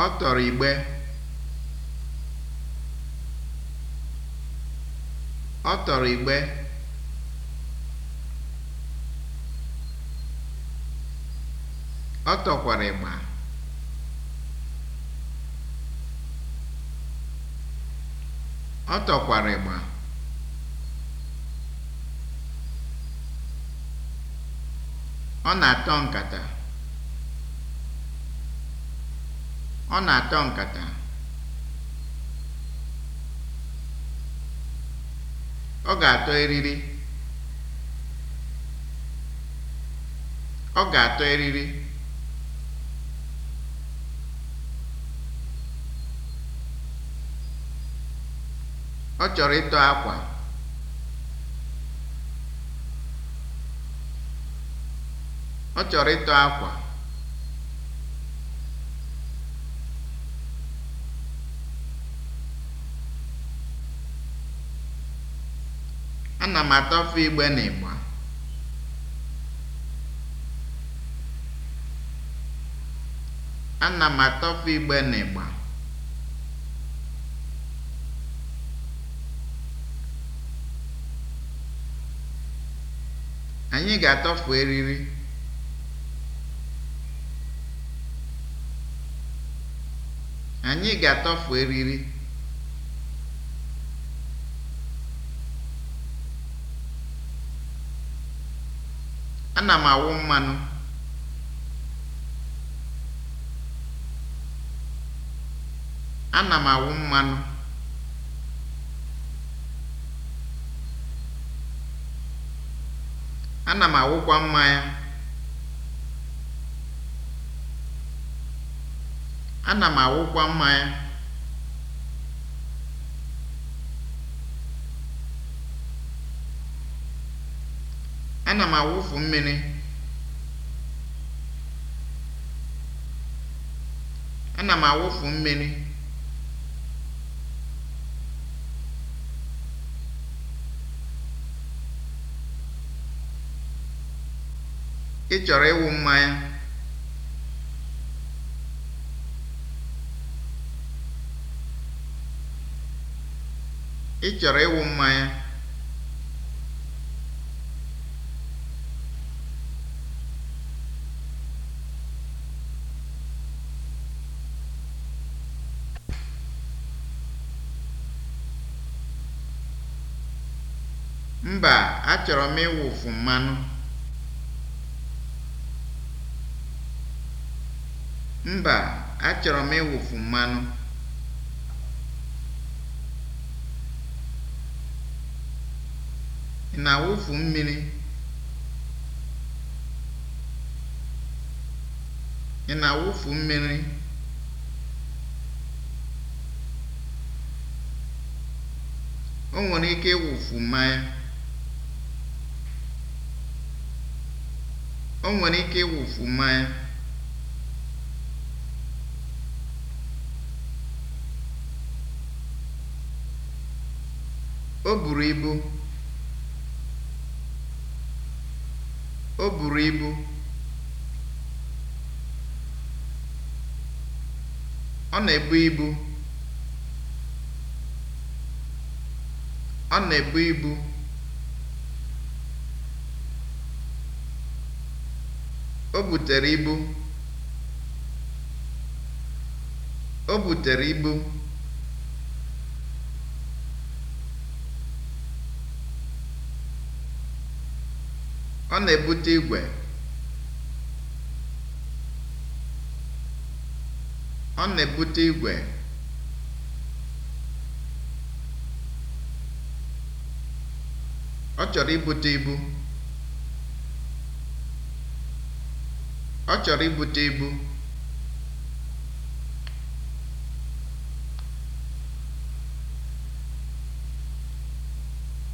Ọ tọrọ igbe. Ọ tọrọ igbe. Ọ tọkwara ịgba. Ọ tọkwara ịgba. Ọ na-atọ nkata. Ọ na-atọ nkata. Ọ ga-atọ eriri. Ọ ga-atọ eriri. Ọ chọrọ ịtọ akwa. Ọ chọrọ ịtọ akwa. Ana m atọfe igbe n'ịgba. Ana m atọfe igbe n'ịgba. Anyị ga-atọfu eriri. Anyị ga-atọfu eriri. Ana m awụ mmanụ. Ana m awụ mmanụ. Ana m awụkwa mmanya. Ana m awụkwa mmanya. ana m awụfu mmiri ana ị chọrọ ịwụ mmanya ị chọrọ ịwụ mmanya Mba, achọrọ m ịwụfu mmanụ. Mba, achọrọ m ịwụfu mmanụ. Ị na-awụfu mmiri? Ị na-awụfu mmiri? O nwere ike ịwụfu mmanya. O nwere ike ịwụfu mmanya. O buru ibu. O buru ibu. Ọ na-ebu ibu. Ọ na-ebu ibu. O butere ibu. Ọ na-ebute igwe. Ọ na-ebute igwe. Ọ chọrọ ibute ibu. Ọ chọrọ ibute ibu.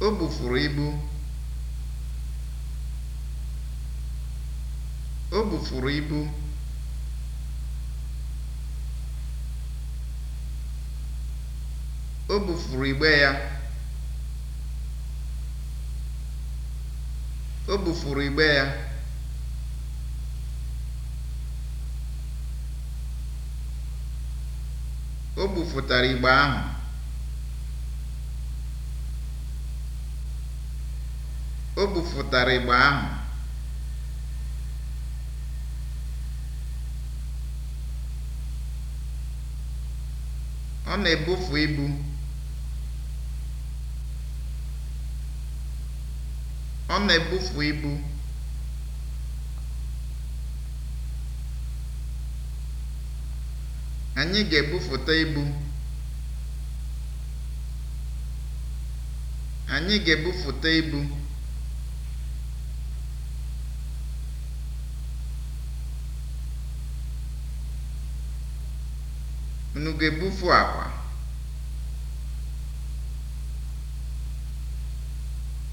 O bufuru ibu. O bufuru ibu. O bufuru igbe ya. O bufuru igbe ya. O gbufụtara igbe ahụ. O gbufụtara igbe ahụ. Ọ na-ebufu ibu. Ọ na-ebufu ibu. Anyị ga-ebuputa ibu. Anyị ga-ebuputa ibu. Unu ga-ebupu akwa?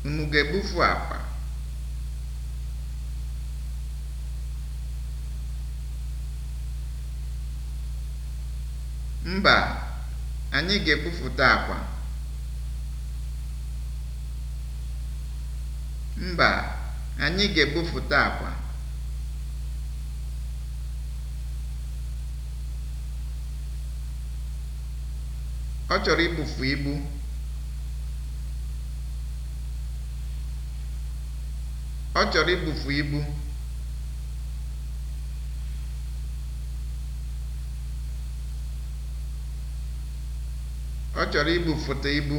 Unu ga-ebupu akwa? Mba, anyị ga-ekwupụta akwa. Mba, Ọ chọrọ ibufu ibu. Ọ chọrọ ibufu ibu. ọ chọrọ ibufụta ibu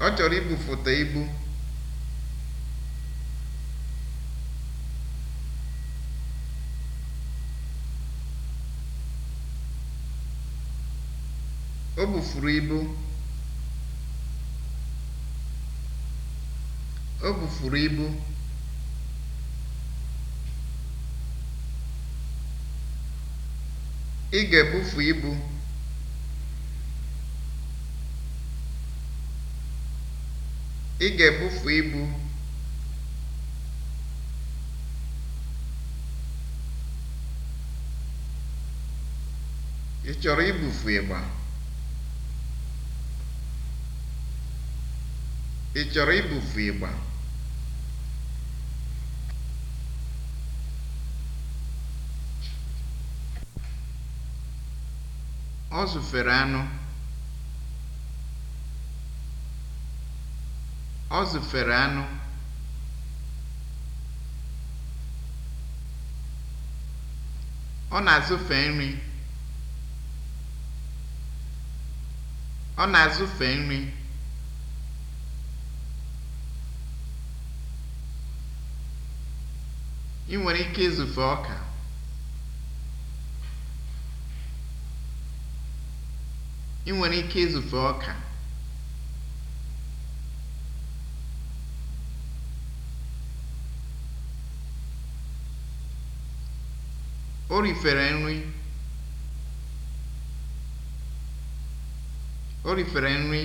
o bufuru ibu o bufuru ibu Ị ga-ebufu ibu. Ị ga-ebufu ibu. Ị chọrọ ibufu ịgba? Ị chọrọ ibufu ịgba? Ọ zụfere anụ. Ọ zụfere anụ. Ọ na-azụfe nri. Ọ na-azụfe nri. Ị nwere ike ịzụfe ọka. Ị nwere ike izufe ọka. O rifere nri. O rifere nri.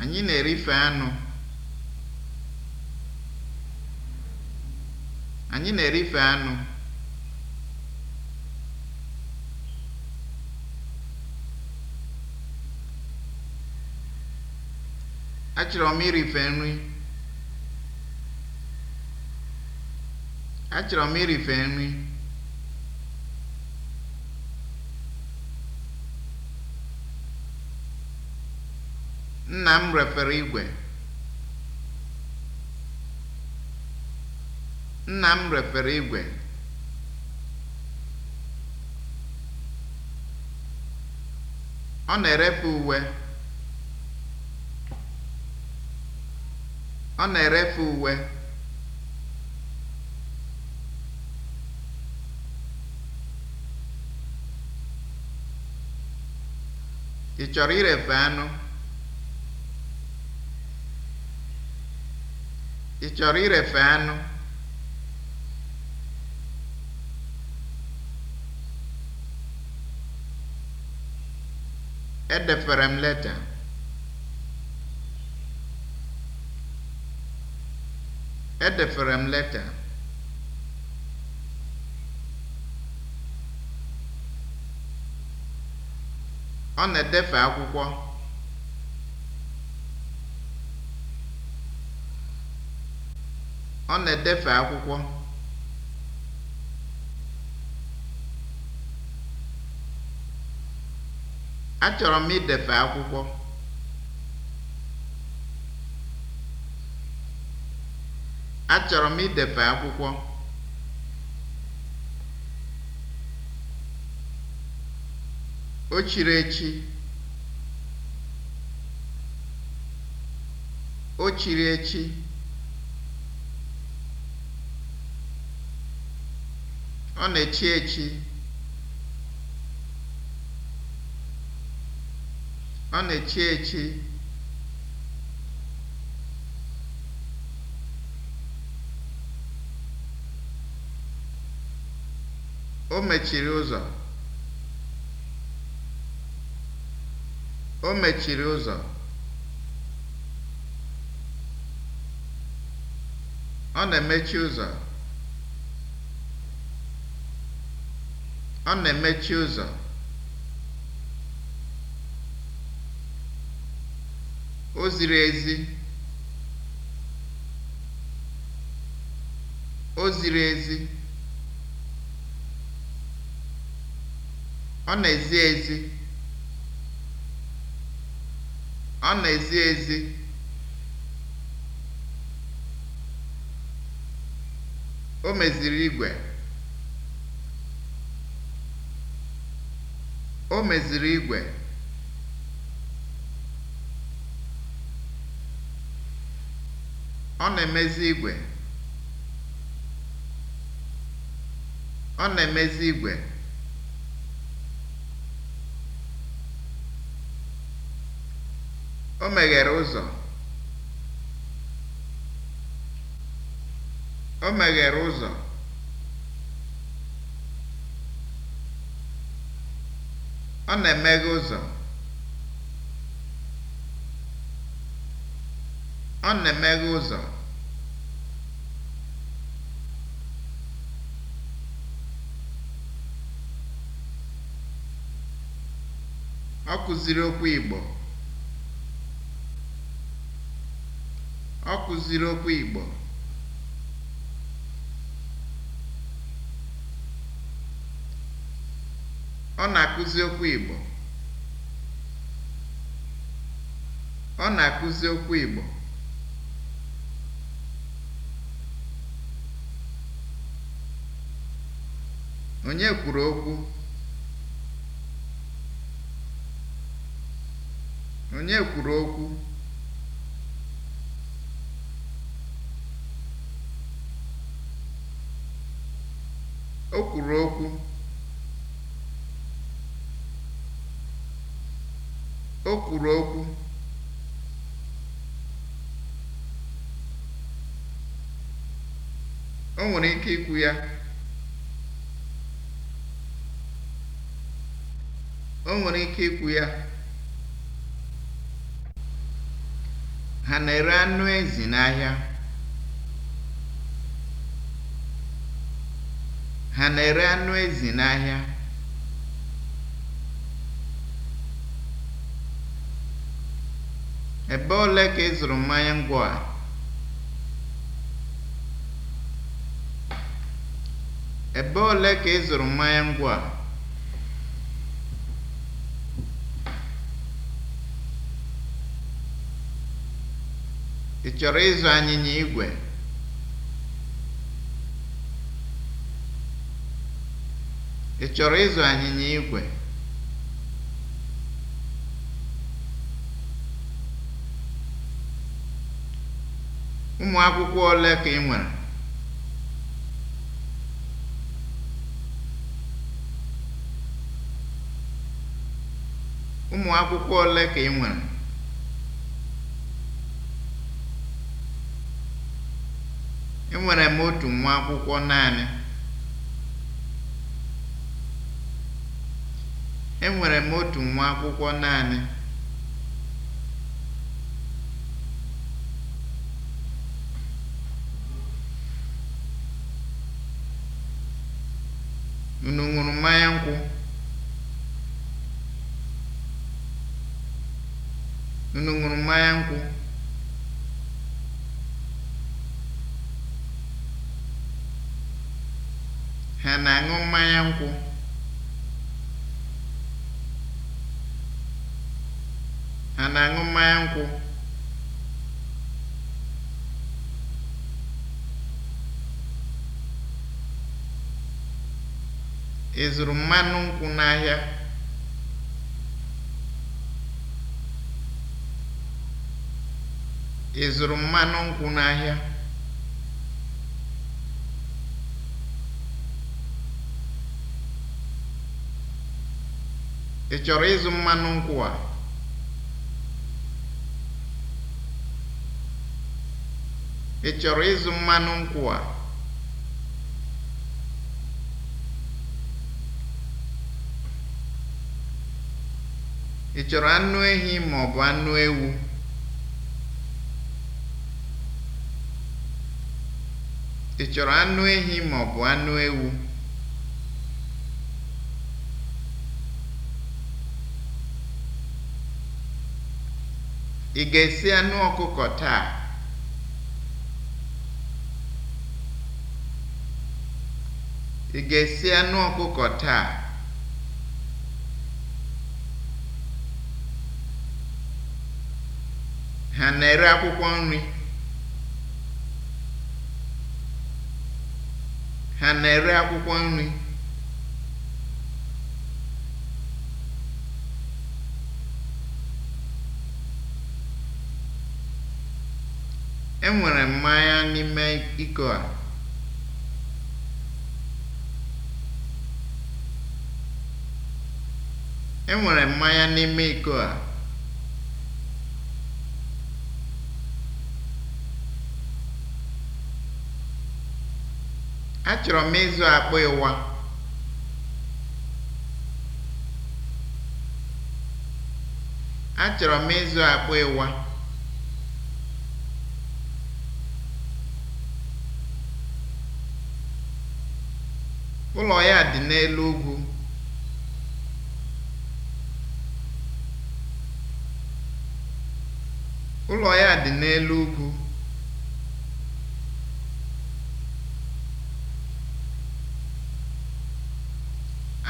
Anyị na-erife anụ. Anyị na-erife anụ. Achọrọ m irife nri. Achọrọ m irife nri. Nna m refere igwe. Nna m repara igwe. Ọ na-erepụ uwe. Ọ na-erepụ uwe. Ị chọrọ irefe anụ? Ị chọrọ irefe anụ? Edefere m leta. Edefere m leta. Ọ na-edefe akwụkwọ. Ọ na-edefe akwụkwọ. Achọrọ m idefe akwụkwọ. Achọrọ m idefe akwụkwọ. O chiri echi. O chiri echi. Ọ na-echi echi. Ọ na-echi echi. O mechiri ụzọ. O mechiri ụzọ. Ọ na-emechi ụzọ. Ọ na-emechi ụzọ. O ziri ezi. O ezi. Ọ na-ezi ezi. meziri igwe. O meziri igwe. Ọ na-emezi igwe. Ọ na-emezi igwe. O meghere ụzọ. O meghere ụzọ. Ọ na-emeghe ụzọ. Ọ na-emeghe ụzọ. Ọ kụziri okwu Igbo. Ọ kụziri okwu Igbo. Ọ na-akụzi okwu Igbo. Ọ na-akụzi okwu Igbo. Onye kwuru okwu? Onye kwuru okwu? O kwuru okwu. O kwuru okwu. O nwere ike ikwu ya. o nwere ike ikwu ya ha na-ere anụ ezi n'ahịa ha na-ere anụ ezi n'ahịa ebe ole ka ị zụrụ mmanya ngwọ a ebe ole ka ị zụrụ mmanya ngwọ a Ị chọrọ ịzụ anyịnya igwe? Ị chọrọ Ụmụ akwụkwọ ole ka ị nwere? enwere m otu nwa akwụkwọ naanị enwere m otu nwa unu ṅụrụ mmanya nkwụ ha na-aṅụ mmanya nkwụ ha nkwụ ị mmanụ nkwụ n'ahịa Ị chọrọ ịzụ mmanụ nkwụ a? Ị chọrọ anụ ehi ma Ị chọrọ anụ ehi ma ọ bụ anụ ewu? Ị ga-esi anụ ọkụkọ taa? Ị ga-esi anụ ọkụkọ taa? Ha na-ere akwụkwọ nri? Ha na-ere akwụkwọ nri? Enwere mmanya n'ime iko a. E n'ime iko a. Achọrọ m ịzụ akpụ ịwa. ịwa. Ụlọ ya dị n'elu ugwu. Ụlọ ya dị n'elu ugwu.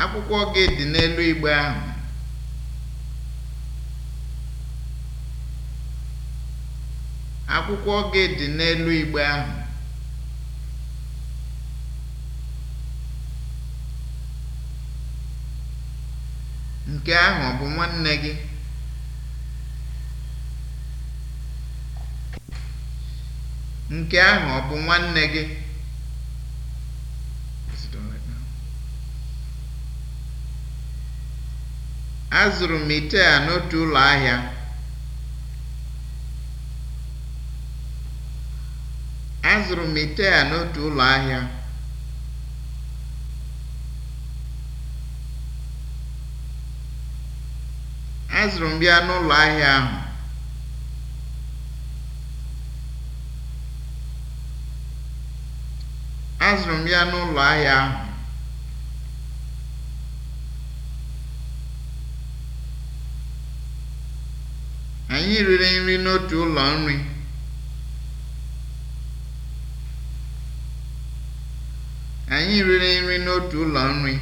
Akwụkwọ gị dị n'elu igbe ahụ. Akwụkwọ gị dị n'elu igbe ahụ. Nke ahụ ọ bụ nwanne gị? Azụrụ m ite a n'otu Azụrụ m ite a n'otu ụlọ ahịa. azụrụ m ya n'ụlọ ahịa ahụ azụrụ m ya n'ụlọ ahịa ahụ anyị riri nri n'otu ụlọ nri anyị riri nri n'otu ụlọ nri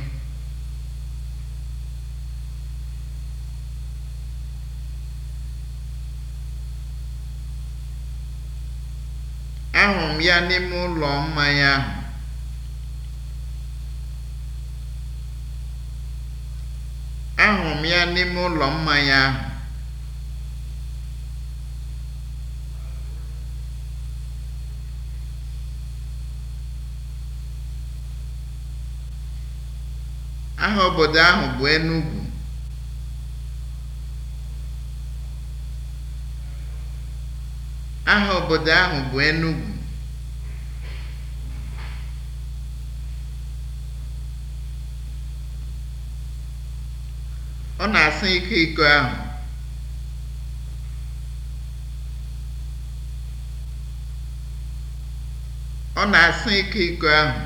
ya n'ime ụlọ mmanya ahụ. Ahụrụ m ya n'ime ụlọ mmanya ahụ. Aha obodo ahụ bụ Enugwu. Aha obodo ahụ bụ enugu iko ahụ ọ na-asị ike iko ahụ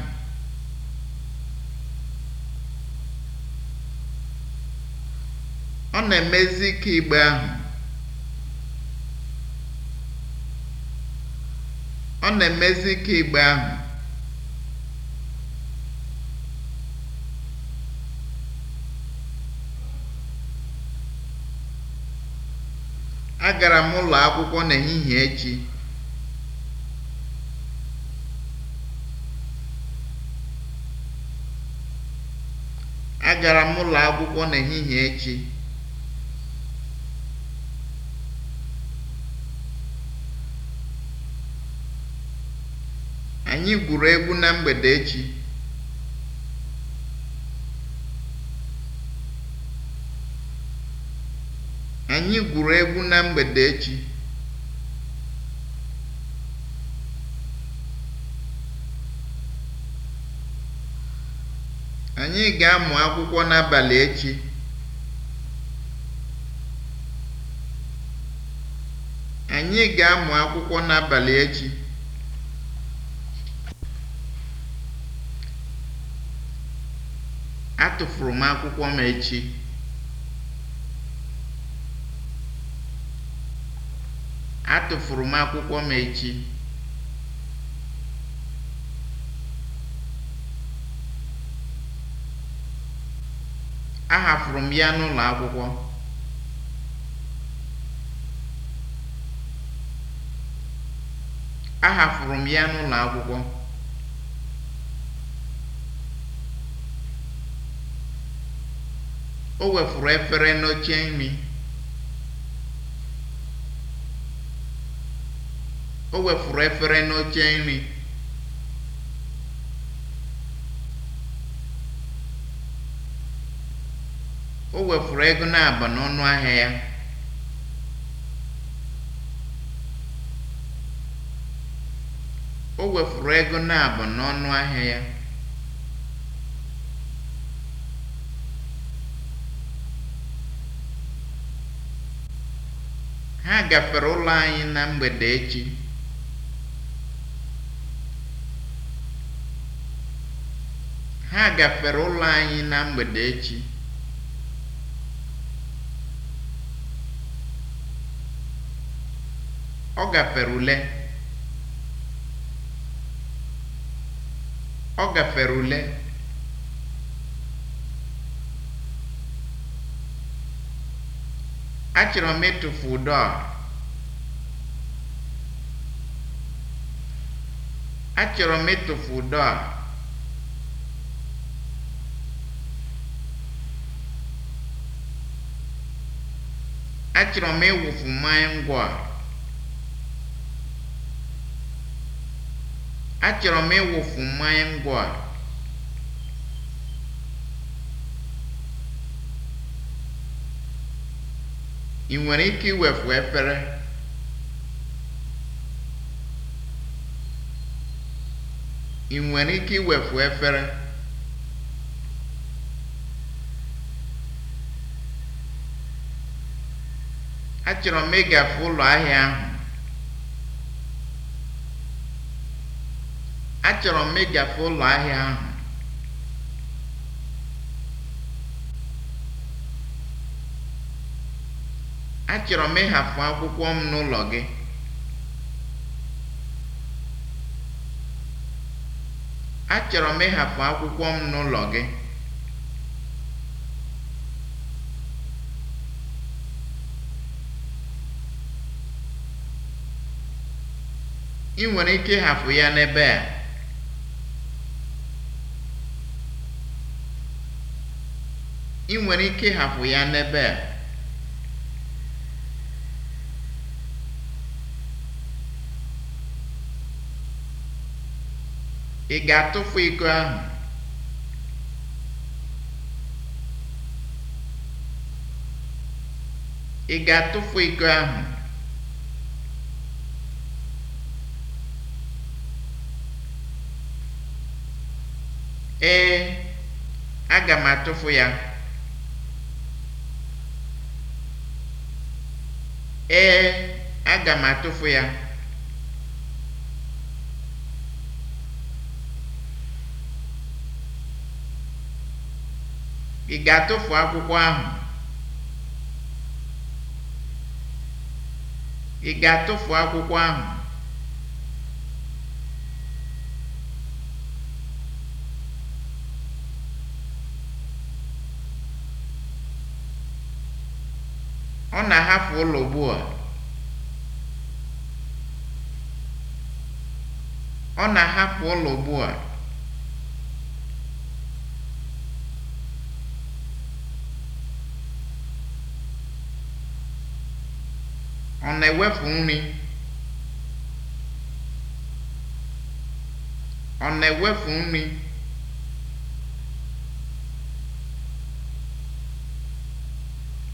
ọ na-emezi ike igbe oh, na-emezi ike igbe ahụ Agara m ụlọ akwụkwọ n'ehihie echi. echi. Anyị gwuru egwu na mgbede echi. Anyị gwuru egwu na mgbede echi. Anyị ga-amụ akwụkwọ n'abalị echi. Anyị ga-amụ akwụkwọ n'abalị echi. Atụfuru m akwụkwọ m echi. Atụfuru m akwụkwọ m echi. Ahafuru m ya n'ụlọ akwụkwọ. Ahafuru m ya n'ụlọ akwụkwọ. O wefuru efere n'oche nri. o wefuru efere n'oche nri o wefuru ego na-aba n'ọnụ ahịa ya o ego na-aba n'ọnụ ahịa ya ha gafere ụlọ anyị na mgbede echi Ha gafere ụlọ anyị na mgbede echi. Ọ gafere ule. Ọ gafere ule. Achọrọ m ịtụfu ụdọ a. Achọrọ m ịtụfu ụdọ a. achọrọ m ịwụfu mmanya ngwọ a achọrọ m ịwụfu mmanya ngwọ a ị nwere ike iwefu efere ị nwere ike iwefu efere achọrọ m ịgafe ụlọ ahịa ahụ achọrọ m ịgafe ụlọ ahịa ahụ achọrọ m ịhafụ akwụkwọ m n'ụlọ gị achọrọ m ịhafụ akwụkwọ m n'ụlọ gị ị nwere ike ịhafụ ya n'ebe a ị ga-atụfu ego ị ga-atụfu iko ahụ ee aga m ya ee aga m ya ị ga ị ga-atụfu akwụkwọ ahụ Ọ na-ahapụ ụlọ ugbu a. Ọ na-ahapụ ụlọ ugbu a. Ọ na-ewepụ nri. Ọ na-ewepụ nri.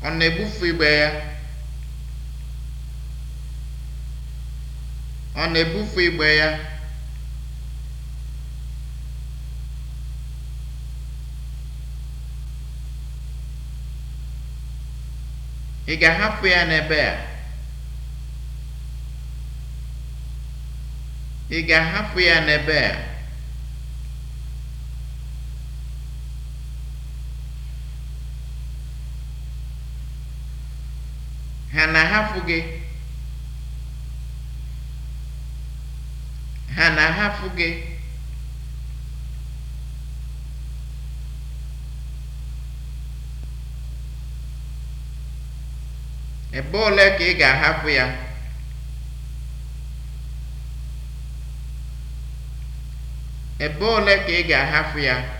ọ na-ebufu igbe ya ọ ị ga-ahapụ ya n'ebe ị ga-ahapụ ya n'ebe a gị ha na-ahapụ gị ebe ole ka ị ga-ahapụ ya ebe ole ka ị ga-ahapụ ya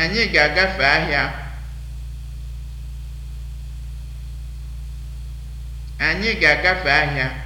Anyị ga-agafe ahịa. Anyị ga-agafe ahịa.